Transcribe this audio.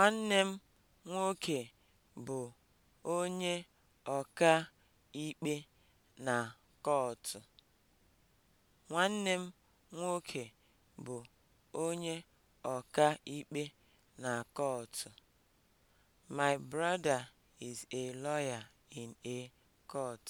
Nwanne m nwoke bụ onye ọka ikpe na kọọtụ. Nwanne My brother is a lawyer in a court.